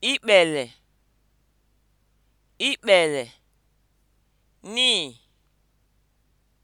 ikpele ikpele ni.